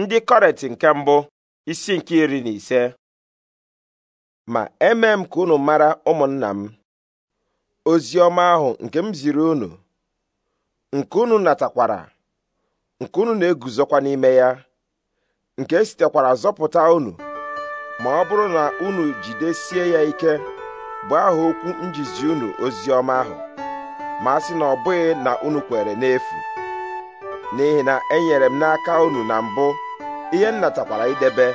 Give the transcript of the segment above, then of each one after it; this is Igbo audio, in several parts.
ndị kọret nke mbụ isi nke iri na ise ma eme m ka unu mara ụmụnna m ozi ọma ahụ nke m ziri unu nke unu natakwara nke unu na-eguzokwa n'ime ya nke sitekwara zọpụta unu ma ọ bụrụ na unu jidesie ya ike bụ aha okwu njizi unu ozi ọma ahụ ma a sị na ọ bụghị na unu kwere n'efu n'ihi na enyere m n'aka unu na mbụ ihe m natakwara idebe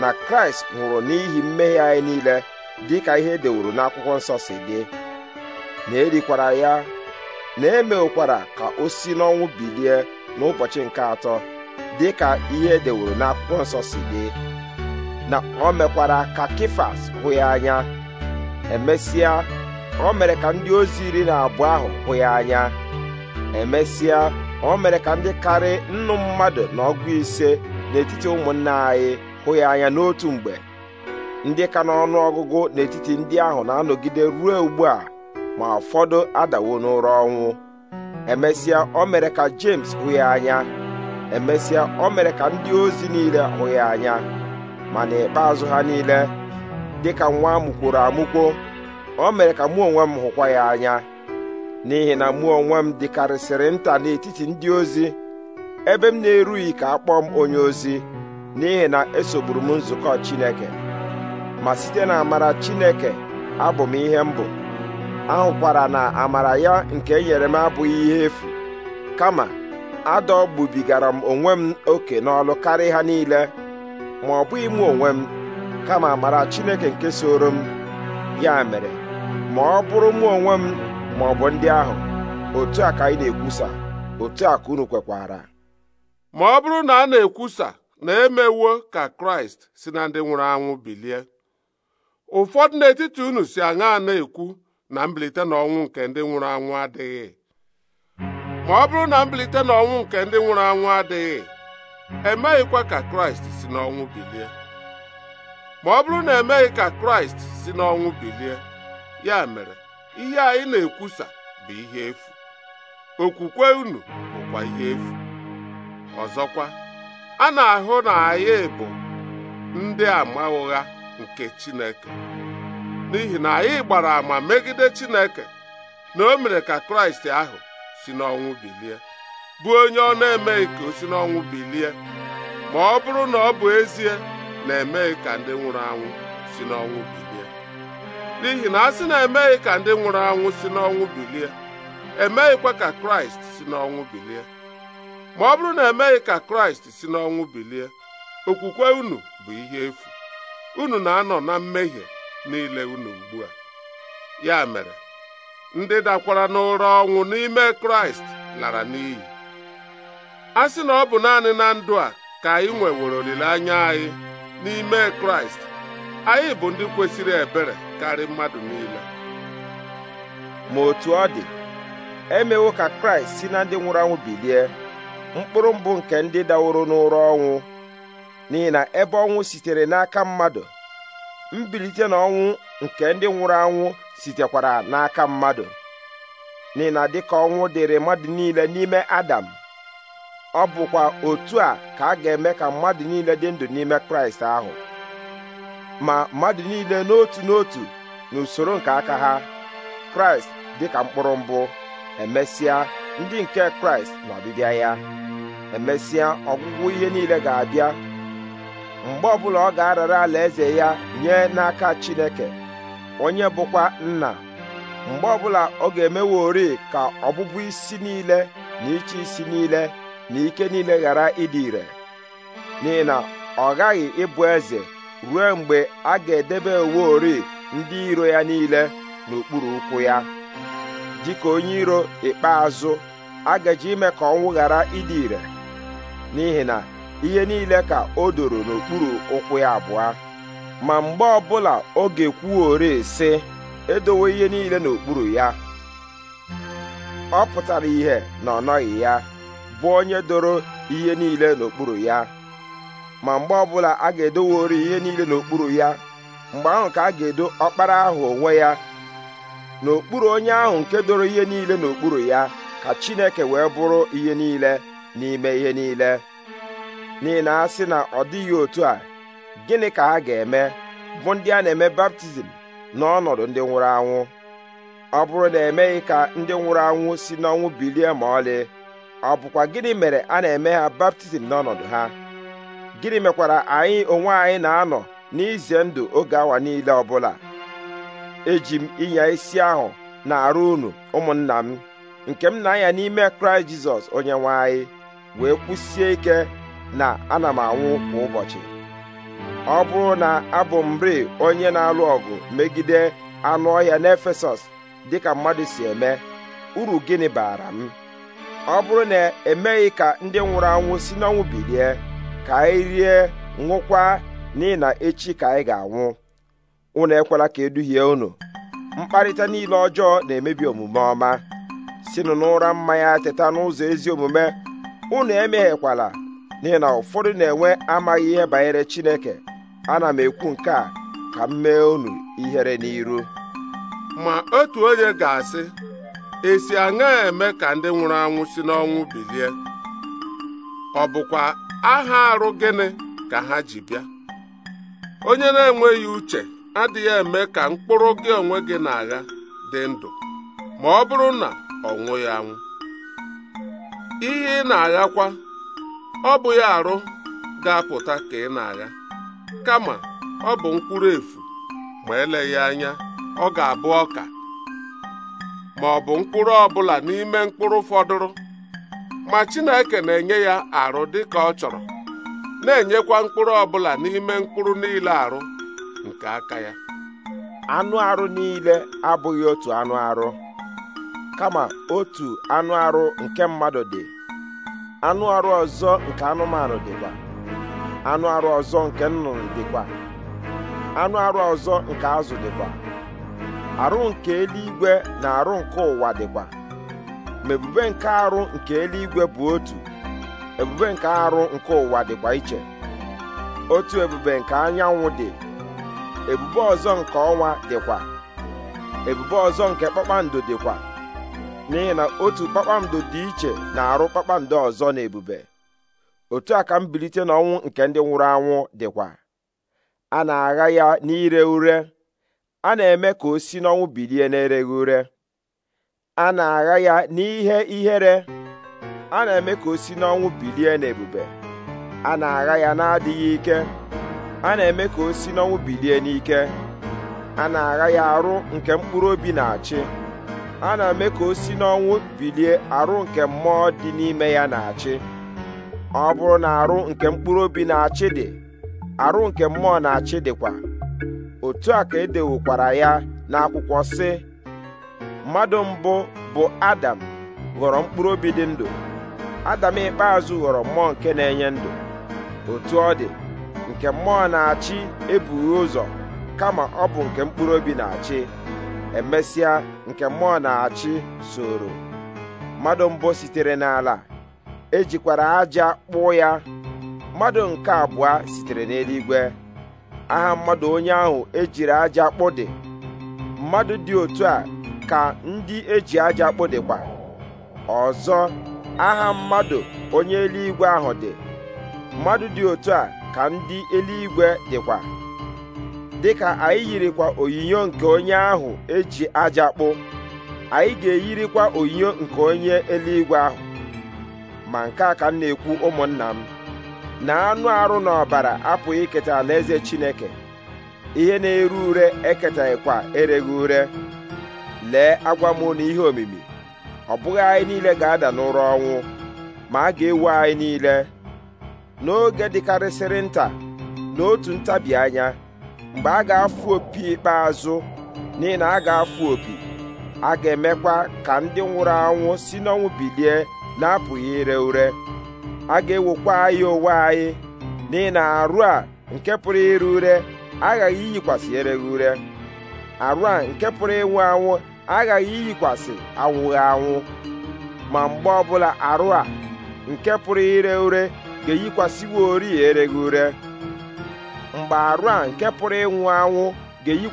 na kraịst nwụrụ n'ihi mmehie anyị niile dị ka ihe e dewuru n'akwụkwọ nsọ si dị na erikwara ya na emekwara ka o si n'ọnwụ bilie n'ụbọchị nke atọ dị ka ihe e dewuru n'akwụkwọ nsọ si dị na o mekwara ka kifas hụ ya anya emesịa o mere ka ndị ozi iri na abụọ ahụ hụ ya anya emesịa o mere ka ndị karị nnu mmadụ na ọgụ ise n'etiti ụmụnne anyị hụ ya anya n'otu mgbe ndị ka n'ọnụ ọgụgụ n'etiti ndị ahụ na-anọgide ruo ugbu a ma ụfọdụ adawo n'ụra ọnwụ emesịa o mere ka James hụ ya anya emesịa o mere ka ndị ozi niile hụ ya anya ma n'ikpeazụ ha niile dịka nwa amụkworo amụkwo o mere ka mụ onwe m hụkwa ya anya n'ihi na mụ onwe m dịkarịsịrị nta n'etiti ndị ozi ebe m na-erughị ka a m onye ozi n'ihi na esogburu m nzukọ Chineke ma site na amara Chineke abụ m ihe m bụ ahụkwara na amara ya nke e nyere m abụghị ihe efu kama adọgbubigara m onwe m oke n'ọlụ karịa ha niile ma ọ bụghị mụ onwe m kama amara Chineke nke soro m ya mere ma ọ bụrụ mụ onwe m ma ọ bụ ndị ahụ otu a ka anyị na-ekwusa otu a ka unu kwekwara ma ọ bụrụ na a na-ekwusa na emewo ka kraịst si na ndị nwụrụ anwụ bilie ụfọdụ n'etiti unu si aṅa na-ekwu na mbilite n'ọnwụ nke ndị nwụrụ anwụ adịghị ma ọ bụrụ na mbilite n'ọnwụ nke ndị nwụrụ anwụ adịghị emeghịkwa ka kraịst si n'ọnwụ bilie ma ọ bụrụ na emeghị ka kraịst si n'ọnwụ bilie ya mere ihe anyị na-ekwusa bụ ihe efu okwukwe unu bụkwa ihe efu ọzọkwa a na-ahụ na anyị bụ ndị ama ụgha nke Chineke n'ihi na anyị gbara ama megide Chineke na o mere ka Kraịst ahụ si n'ọnwụ bilie bụ onye ọ na-emeghị ka o si n'ọnwụ bilie ma ọ bụrụ na ọ bụ ezie na-emeghị ka ndị nwụrụ anwụ si n'ọnwụ bilie n'ihi na a sị na emeghị ka ndị nwụrụ anwụ si n'ọnwụ bilie emeghịkwa ka kraịst si n'ọnwụ bilie ma ọ bụrụ na emeghị ka kraịst si n'ọnwụ bilie okwukwe unu bụ ihe efu unu na-anọ na mmehie niile unu ugbu a ya mere ndị dakwara n'ụra ọnwụ n'ime kraịst lara n'iyi a sị na ọ bụ naanị na ndụ a ka anyị nwewere olileanya anyị n'ime kraịst anyị bụ ndị kwesịrị ebere karị mmadụ niile ma otu ọ dị emewo ka kraịst si na ndị nwụrụ anwụ bilie mkpụrụ mbụ nke ndị daworo n'ụra ọnwụ n'ihi na ebe ọnwụ sitere n'aka mmadụ mbilite na n'ọnwụ nke ndị nwụrụ anwụ sitekwara n'aka mmadụ n'ihi na dịka ọnwụ dịrị mmadụ niile n'ime adam ọ bụkwa otu a ka a ga-eme ka mmadụ niile dị ndụ n'ime kraịst ahụ ma mmadụ niile n'otu n'otu n'usoro nke aka ha kraịst dị ka mkpụrụ mbụ emesịa ndị nke kraịst na ọbịbịa ya emesịa ọgwụgwụ ihe niile ga-abịa mgbe ọbụla ọ ga-arara eze ya nye n'aka chineke onye bụkwa nna mgbe ọbụla ọ ga ori ka ọbụbụ isi niile na ịchị isi niile na ike niile ghara ịdị ire n'ihi na ọ ghaghị ịbụ eze ruo mgbe a ga-edebe uwe ori ndị iro ya niile n'okpuru ụkwụ ya dịka onye iro ikpeazụ a ga-eji ime ka ọnwụ ghara ịdị ire n'ihi na ihe niile ka o doro n'okpuru ụkwụ ya abụọ ma mgbe ọbụla oge kwuo ori sị edowe ihe niile n'okpuru ya ọ pụtara ihe na ọ nọghị ya bụ onye doro ihe niile n'okpuru ya ma mgbe ọbụla a ga-edowori ihe niile n'okpuru ya mgbe ahụ ka a ga-edo ọkpara ahụ onwe ya n'okpuru onye ahụ nke doro ihe niile n'okpuru ya ka Chineke wee bụrụ ihe niile n'ime ihe niile n'ihi na a sị na ọ dịghị otu a gịnị ka ha ga-eme bụ ndị a na-eme baptizim n'ọnọdụ ndị nwụrụ anwụ ọ bụrụ na emeghị ka ndị nwụrụ anwụ si n'ọnwụ bilie ma ọlị ọ bụkwa gịnị mere a na-eme ha baptizim n'ọnọdụ ha gịnị mekwara anyị onwe anyị na-anọ n'ize ndụ oge awa niile ọbụla eji m ịnya isi ahụ na-arụ unu ụmụnna m nke m na-anya n'ime kraịst jizọs onye nwanyị anyị wee kwụsie ike na ana m anwụ kwa ụbọchị ọ bụrụ na abụ m rịị onye na-alụ ọgụ megide anụ ọhịa n'efesọs dịka mmadụ si eme uru gịnị baara m ọ bụrụ na emeghị ka ndị nwụrụ anwụ si n'ọnwụ bilie ka anyị rie ṅụkwa n'ihi na echi ka anyị ga-anwụ unu ekwela ka eduhie unu mkparịta niile ọjọọ na-emebi omume ọma sinụ n'ụra mmanya teta n'ụzọ ezi omume unu emeghekwala n'ihi na ụfọdụ na-enwe amaghị ihe banyere Chineke ana m ekwu nke a ka m mee unu ihere n'iru ma otu onye ga-asị esi aṅa eme ka ndị nwụrụ anwụ si n'ọnwụ bilie ọ bụkwa aha arụ gịnị ka ha ji bịa onye na-enweghị uche adịghị eme ka mkpụrụ gị onwe gị na-agha dị ndụ ma ọ bụrụ na ọ nwụghị anwụ ihe ị na-aghakwa ọ bụ ya arụ ga-apụta ka ị na-agha kama ọ bụ mkpụrụ efu ma eleghị anya ọ ga-abụ ọka ma ọ bụ mkpụrụ ọbụla n'ime mkpụrụ fọdụrụ ma Chineke na-enye ya arụ dịka ọ chọrọ na-enyekwa mkpụrụ ọbụla n'ime mkpụrụ niile arụ nke aka ya anụ arụ niile abụghị otu anụ arụ kama otu anụ arụ nke mmadụ dị anụ arụ ọzọ nke anụmanụ dịkwa anụ arụ ọzọ nke nnụnụ dịkwa anụ arụ ọzọ nke azụ dịkwa arụ nke eluigwe na arụ nke ụwa dịkwa ma ebube nke arụ nke eluigwe bụ otu ebube nke arụ nke ụwa dịkwa iche otu ebube nke anyanwụ dị ebube ọzọ nke ọnwa dịkwa ebube ọzọ nke kpakpando dịkwa n'ihi na otu kpakpando dị iche na-arụ kpakpando ọzọ na ebube otu a ka mbilite n'ọnwụ nke ndị nwụrụ anwụ dịkwa a na-agha ya n'ire ure a na-eme ka o si n'ọnwụ bilie n'ereghị ure a na-agha ya n'ihe ihere a na-eme ka o si n'ọnwụ bilie n'ebube a na-agha ya na-adịghị ike a na-eme ka o si n'ọnwụ bilie n'ike a na-agha ya arụ nke mkpụrụ obi na-achị a na-eme ka o si n'ọnwụ bilie arụ nke mmụọ dị n'ime ya na-achị ọ bụrụ na arụ nke mkpụrụ obi na-achị dị arụ nke mmụọ na-achị dịkwa otu a ka edewokwara ya n'akwụkwọ si. mmadụ mbụ bụ adam ghọrọ mkpụrụ obi dị ndụ adam ikpeazụ ghọrọ mmụọ nke na-enye ndụ otu ọ dị nke mmụọ na-achị ebughị ụzọ kama ọ bụ nke mkpụrụ obi na-achị emesịa nke mmụọ na-achị soro mmadụ mbụ sitere n'ala ejikwara aja kpụọ ya mmadụ nke abụọ sitere n'eluigwe aha mmadụ onye ahụ ejiri aja kpụ dị mmadụ dị otu a ka ndị eji aja dịkwa, ọzọ aha mmadụ onye eluigwe ahụ dị mmadụ dị otu a ka ndị eluigwe dịkwa dịka anyị yirikwa onyinyo nke onye ahụ eji aja kpụ anyị ga-eyirikwa onyinyo nke onye eluigwe ahụ ma nke a ka m na-ekwu ụmụnna m na anụ arụ na ọbara apụghị iketa alaeze Chineke ihe na-ere ure eketaghịkwa ereghị ure lee agwa m na ihe omimi ọ bụghị anyị niile ga-ada n'ụra ọnwụ ma a ga-ewu anyị niile n'oge dịkarịsịrị nta n'otu ntabi anya mgbe a ga-afụ opi ikpeazụ n'ihi na a ga-afụ opi a ga-emekwa ka ndị nwụrụ anwụ si n'ọnwụ bilie na-apụghị ire ure a ga-ewokwa anyị onwe anyị n'ihi na arụ a nke pụrụ ire ure aghaghị iyikwasị ereghị ure arụ a nke pụrụ ịnwụ anwụ aghaghị iyikwasị anwụghị anwụ ma mgbe ọbụla arụ a nke pụrụ ire ure ga ori ereghị ure mgbe arụ a nke pụrụ ịnwụ anwụ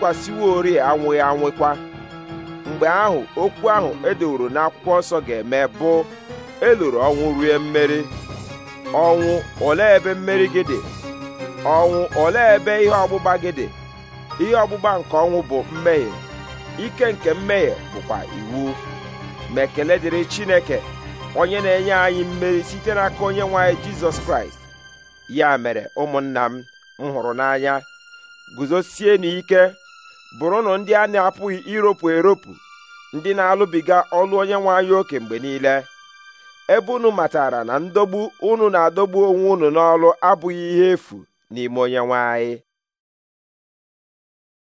ga ori anwụghị anwụkwa mgbe ahụ okwu ahụ edoworo n'akwụkwọ nsọ ga-eme bụ eloro ọnwụ rue mmeri ọnwụ olee ebe mmeri gị dị ọnwụ olee ebe ihe ọgbụgba gị dị ihe ọgbụgba nke ọnwụ bụ mmehie ike nke mmehie bụkwa iwu ma ekele dịrị chineke onye na-enye anyị mmeri site n'aka onye nwanyị jizọs kraịst ya mere ụmụnna m m hụrụ n'anya guzosie n'ike bụrụnụ ndị a na-apụghị iropu eropu ndị na-alụbiga ọlụ onye nwanyị anyị oke mgbe niile ebe unu matara na ndogbu unu na-adọgbu onwe unu n'ọlụ abụghị ihe efu n'ime onye